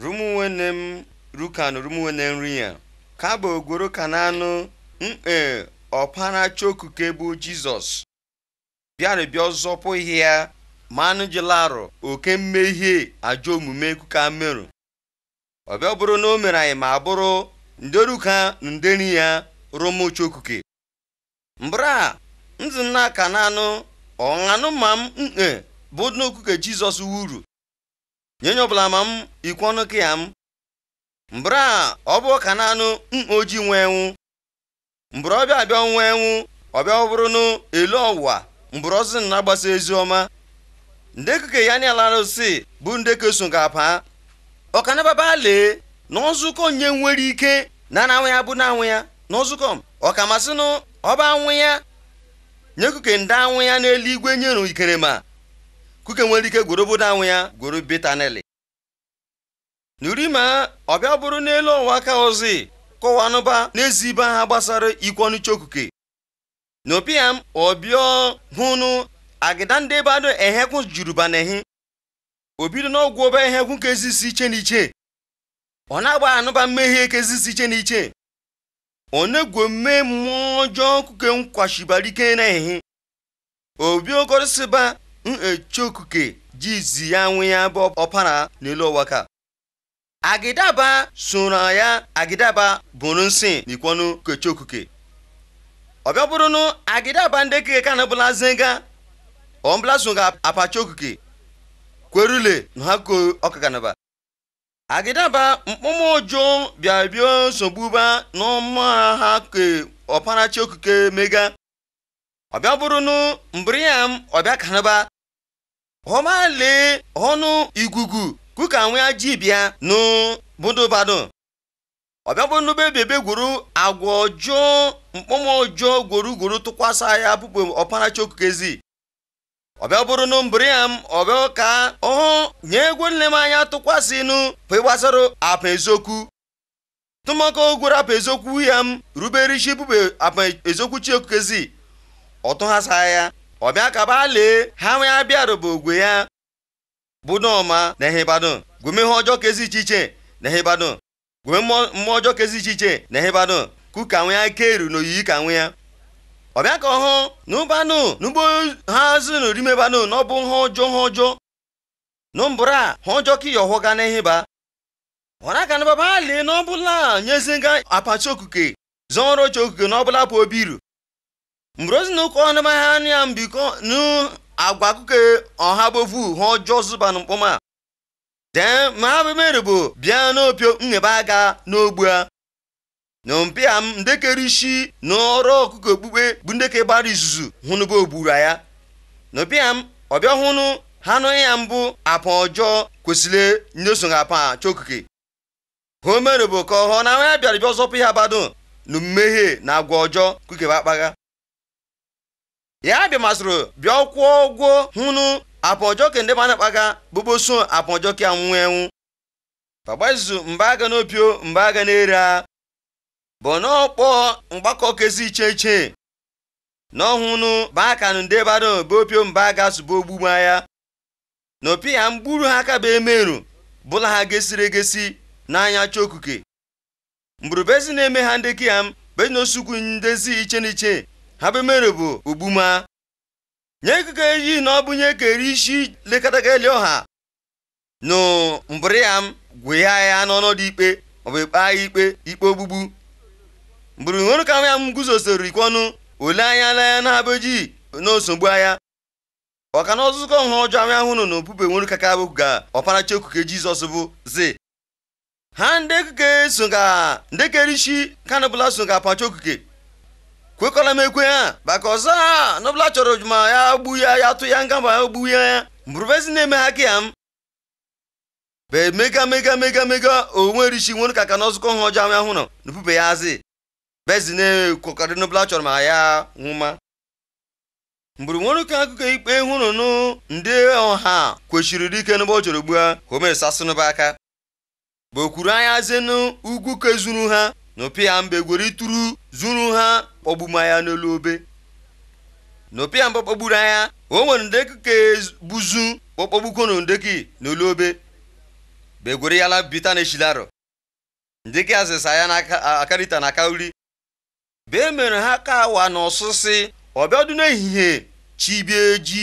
rumunwene m rukan rumunwene nri ya ka bụ ogworo mm, mkpe ọpara chokuke bụ jizọs bịarịbịa ọzọpụ ihe ya manụ jilarụ oke mmehie ajọ omume kuka merụ ọbịa bụrụ na o mere anyị ma bụrụ nderuka nderi ya rụmụ chokuke ndị nna kananụ ọṅanụ ma m mkpe mm, bụ n'okuke jizọs wuru nye nye ọbụla ma m ikwu ọnụ ka ya m mbra ọ bụ ka naanụ mkpa ojii nwe enwu mbụrụ ọbịa abịa nwa enwu ọbịa ọ bụrụ n'elu ọwụwa mbụrụ ọzọ na-agbasa ezi ọma ndekeke ya na ala arụsị bụ ndeke so ga-apa ọkanababa lee na ọzụkọ nye nwere ike na na ya bụ na anwụ ya na ọzụkọ m ọkamasịnụ ọba anwụ ya nyekuke ndị anwụ ya n'eluigwe nyeru ikerema kuke nwere ike gworo obodo anwụ ya gworo betaneli n'urima ọbịa bụrụ n'elu ọwa aka ozi nụba n'ezi ibe ha gbasara ikwu ọnụcha okuke n'opiam ọbịa hụnụ agịda ndị ebe ehekwu juruba na ehi obido n'ọgwụ ọba ehekwu ka ezisi iche na iche ọ na-agba anụba mmehie ka ezisi iche na iche onegwu mme mmụọ ọjọọ kuke nkwashibara ike na ehi obi okorosịba nchokuke jizi ya nwe ya bụ ọpara n'elu ụwa ka agidaba soro ya agidaba bụrụ nsị n'ikwọnụ kechokuke ọbịa bụrụ nụ agidaba ndị keke ka na bụla zenga ọmbụla so ga apachokuke kwerule na ha ko ọkakanaba agidaba mkpụmụ ụjụ bịa bịa nsogbuba n'ọma ha ke ọpara chokuke mega ọbịa bụrụ nụ mbụrụ ya m ọbịa kanaba homa lee ọnụ igugu kuka nwe aji bịa n'budubado ọbịagbonube bebe gwuru agwa ọjọọ mkpọmọ ọjọọ gwuru gworo tụkwasa ya bụbụ ọparacha okukezi ọbịa bụrụ nụ mbụrụ ya m ọbịa ka ọ nye egwu nne m anya tụkwasị nụ pịgbasara apa eziokwu tụmakọ gwuru apa eziokwu ya m rubere isi apa eziokwu chi okukezi ọtụghasa ya ọbịa ka ba lee ha nwe abịarụba ogwe ya bụ n'ọma na ehebado gweme ihe ọjọọ kezi iche iche na ehebado gweme mmụọ ọjọọ kezi iche iche na ehebado ku ka nwe ya keru na oyiyi ka nwe ya ọbịa ka ọhụ na ụbanụ n'ugbo ha zụnụ rimebanụ na ọ bụ ha ọjọọ ha ọjọọ na mbụra ha ọjọọ ka ịyọ hụga na eheba ọra ka na baba lee na ọbụla nyeziga apachi okuke zọọrọ oche okuke na ọbụla bụ obi iru mbrozi ozi ụka ọnụmahịa anụ ya mbikọ nu agwa akụkọ e, ọha bovu ha ọjọọ zụba na mkpọma dee ma bụ mere bụ bịa n'opio nghebe aga n'ogbu a na mpịa m ndekere isi na ọrụ ọkụkọ okpukpe bụ ndeke gbara izuzu hụnụba ogbura ya na m ọbịa hụnụ ha nụ ya mbụ apa ọjọọ kwesịrị ndị so apa chokike ha mere bụ ka ọhọ na ya bịara bịa ọzọpụ ya bado na mmehie na agwa ọjọọ kukeba akpagha ya dị masịrị bịa kwụọ ụgwọ hụnụ apọjọke ndị mana kpaga bụboso apọjọke anwụ enwu pagbazu mba aga n'opio mba aga n'era bụ n'ọkpọ mgbakọ kezi iche iche n'ọhụnụ bakanụ ndị bado be opio mba aga sụba ogbugbu ya na opi ya mgburu ha aka bụ emerụ bụla ha gesiri egesi n'anya chokuke mgburubezi na-eme ha ndị kiyam bezinosuku ndezi iche n'iche habemere bụ ogbuma nye ekeke eji na ọ bụ nye kere isi lekọtageli ọha nụ mbụrụ ya m gwụya ya n'ọnọdụ ikpe maọbụ ikpe agha ikpe ikpe ogbugbu mbụrụ nwere ka ya m guzosoro ikwe ọnụ ole anya na ya na-abụji n'osogbu agha ọka na ọzụzụkọ nha ọjọọ ahụ ahụnụ na obube nwere ka ka ga ọparachi okuke jizọs bụ zi ha ndị ekuke so ga ndị kere isi kanụbụla so ga apacha okuke kwekwara m ekwe ya maka ọzọ n'ọbụla chọrọ ma ya gbu ya ya tụ ya nga ma ya gbu ya mbụrụbezi na-eme ha ka ya m be mega mega mega mega onwe rishi nwere ka ka na ọzụkọ ha ọjọọ ahụ nọ n'upube ya azị bezi na-ekwekọrị n'ọbụla chọrọ ma ya nwụma mgburu nwere ka akụkọ ikpe hụrụnụ ndị ọha kwechiri dike n'ụbọ chọrọ gbu ha homesasịnụba aka bụ okwuru anya zenu ugwu kezuru ha n'opia mgbe gwere ituru zuru ha kpọgbuma ya n'olu obe n'opia mgbe kpọgburu anya o nwere ndeki ka buzu kpọkpọgbuko na ndeki n'olu obe begwere ya la bita na eshilaro ndeki azịsa ya na akarịta na akauri bee mere ha ka awa na ọsụsị ọbịadụ n'ehihie chibie ji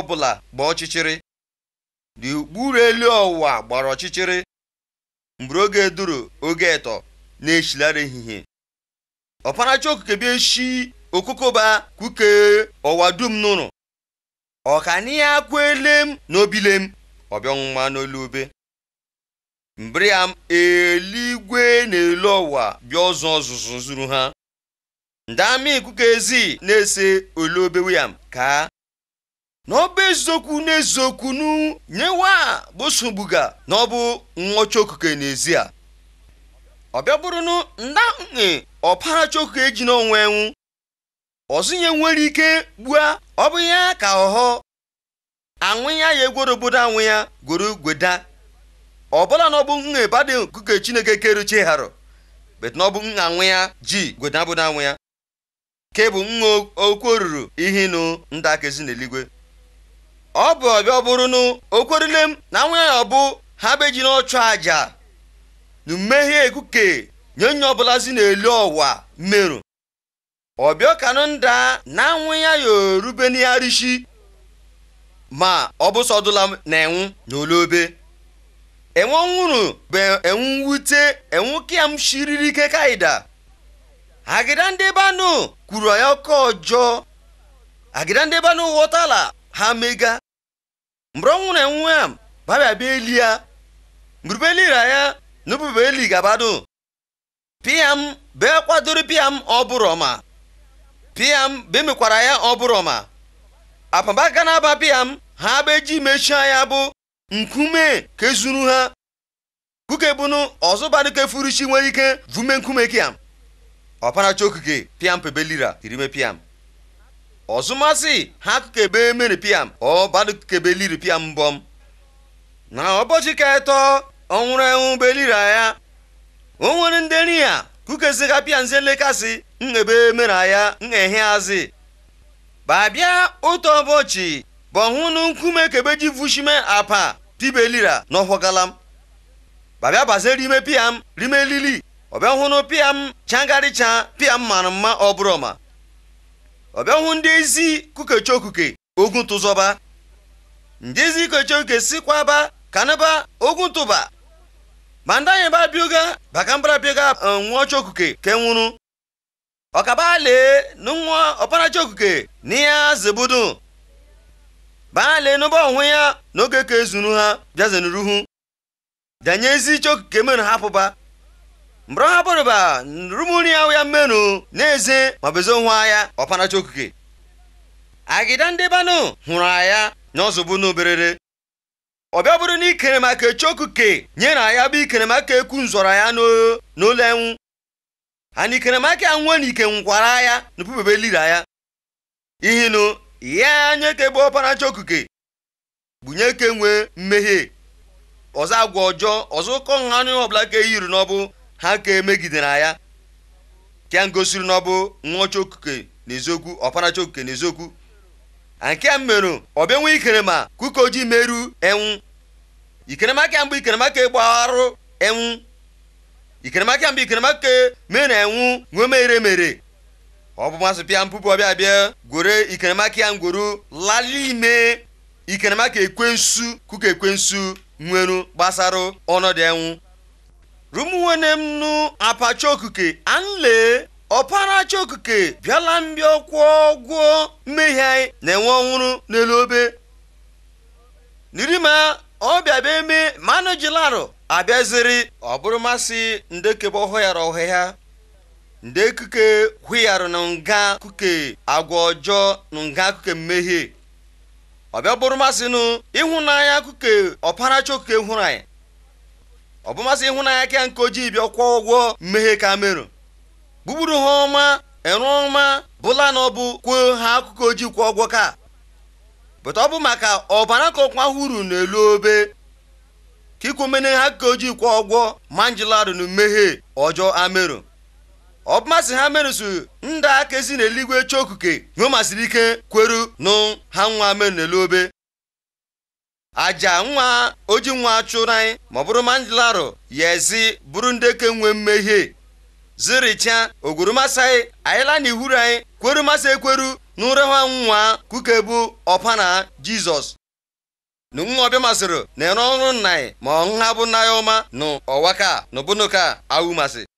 ọbụla gbaa ọchịchịrị dị ukpuru elu ọwa gbara ọchịchịrị mgbe oge duru oge ịtọ. na-echere n'eshilari ehihie ọparacha okuke bịa eshi Okokoba kuke ọwa dum nụrụ ọkani ya kwelem n'obilem ọbịọnwa n'olu ube mbri ya eluigwe na-elu ọwa bịa ọzọ ọzụzụ zuru ha ndị amị ezi na-ese olu obe william ka n'ọba eziokwu eziokwu nu nyewa bụsogbuga na ọ bụ nwọcha okuke n'ezie ọ bịa bụrụ na ndae e ji eji n'onwe enwu ọzụnye nwere ike gbua ọ bụ ya ka ọghọ anwụ ya ya egworo obodo anwụ ya gworo gweda ọbụla na bụ nha badị nkuke chineke keruchie harụ bet na bụ nha anwụ ya ji gweda obodo anwụ ya ke bụ nha okwu oruru ihe nụ nda akezi n'eluigwe ọ bụ ọbịa ọ bụrụ na okwerile m na anwụ ya ọbụ ha beji n'ọchụ aja na mmehie ekuke nye onye ọbụlazi na-elu ọwa merụ ọbịọkanụ nda na anwụ ya yorube n'igharishi ma ọ bụ sọdụla na enwu na olobe enwe nwụrụ bụ enwu wute enwu kiam shiriri ike kaida agịda ndị banụ kwuru ya ọkọ ọjọọ agịda ndị banụ ghọtala ha mega mgbe ọ nwụrụ enwu ya babịa bịa eli ya mgburubeelira ya nubu eli gabado piam bee kwadoro piam ọbụrọma piam bee mekwara ya ọbụrọma apamba gana aba piam ha beji mechia ya bụ nkume kezuru ha kuke bunu ọzụbaduke furuchi nwere ike vume nkume kiam ọpanacha okuke piam pebelira irime piam ọzụmasị ha kukebe mere piam ọ badukebe liri piam mbọm na ọbọchị ka ọ nwụrụ enwụ belira ya o nwere ndị nri ya kukezi kapịa nze lekasị n'ebe mere ya n'ehe azị babịa otu ụbọchị bọhụ na nkume kebeji vushime apa pibelira n'ọhwagalam babịa bazere ime piam rime lili ọbịa hụnụ piam changarịcha piam mara mma ọbụrọma ọbịa hụ ndị ezi kukechokuke ogun tụzọba ndị ezi kukechokuke sikwaba kanaba ogun tụba banda anyị ba bioga baka mbara bioga eh, nwa chokuke ke nwụrụ ọkaba lee nwa ọpara okuke na ya zebudu baa lee n'ụba onwe ya n'oge ka ezuru ha bịazenuruhu danye ezi chokuke menu hapụba mgbọrọ ha bụrụba nrumuri ahụ ya mmenụ na-eze ma bezo nwa ya ọpara chokuke agịda ndị banụ hụrụ aya na ọzọbunu berere ọ bịa bụrụ na ikere maka echoku ke nye na ya bụ ikere maka ekwu nzọrọ ya n'ụlọ enwu ana ikere maka ya nwe na ike nkwara ya na pubebe ya ihinu ya ka egbe ọpara okuke bunye ke nwee mmehie ọzọ agwa ọjọọ ọzọ ụkọ nha anụ ọbụla ka eyiri n'ọbụ ha ka emegidere ya ka ngosiri n'ọbụ nwa chokuke n'eziokwu ọpara na eziokwu. nke a mmerụ ọbịa nwe ikerema kuka ojii meru enwu ikeremaka mbụ ikeremaka gbagharụ enwu ikeremaka mbụ ikeremaka mere enwu nwemere mere ọ bụ masị pịa mpupu ọbịa bịa gwere ikeremaka ya ngwuru lali ime ikeremaka ekwensu kuka ekwensu nweru gbasara ọnọdụ enwu rumuwene m nu apacha okuke anle ọpara chiokuke bịala mbịa kwụọ gwuo mmehie anyị na-enwe ọnwụrụ n'elu obe nirima ọbịa bụ eme mmanụ jilarụ abịaziri ọ bụrụ masị ndekebe ọhụyara ọhịa nde kuke hụyarụ na nga kuke agwa ọjọọ na nga kuke mmehie ọbịa bụrụ masị nụ ịhụnanya kuke ọpara chiokuke hụrụ anyị ọ bụ masị ịhụnanya ka nke ojii bịa kwụọ ụgwọ mmehie ka merụ gbugburu ha ọma eru ọma bụla na ọ bụ kwuo ha akụkọ ojii kwụọ ọgwọ ka bụta ọ bụ maka ọbara ka ọkwa huru elu obe ka ikwomene ha akụkọ ojii kwụọ ọgwọ manjilarụ na mmehie ọjọọ amerụ ọ bụmasị ha merụsụ ndị aka ezi n'eluigwe chokuke nyomasịrị ike kweru nụ ha nwa merụ n'elu obe aja nwa oji nwa chụrụ anyị ma ọ bụrụ manjilarụ ya ezi bụrụ ndị ke nwee mmehie ziricha anyị anyịla na ihuru anyị kwerumasị ekweru na ha nwa kukebu ọpana jizọs nṅụọbịa masịrị na ere ọrụ nna anyị ma ha bụ nna ya ọma na ọwaka na ka awụmasị